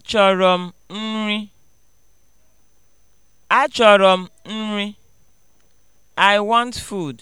Achọrọ m nri. Achọrọ m nri. I want food.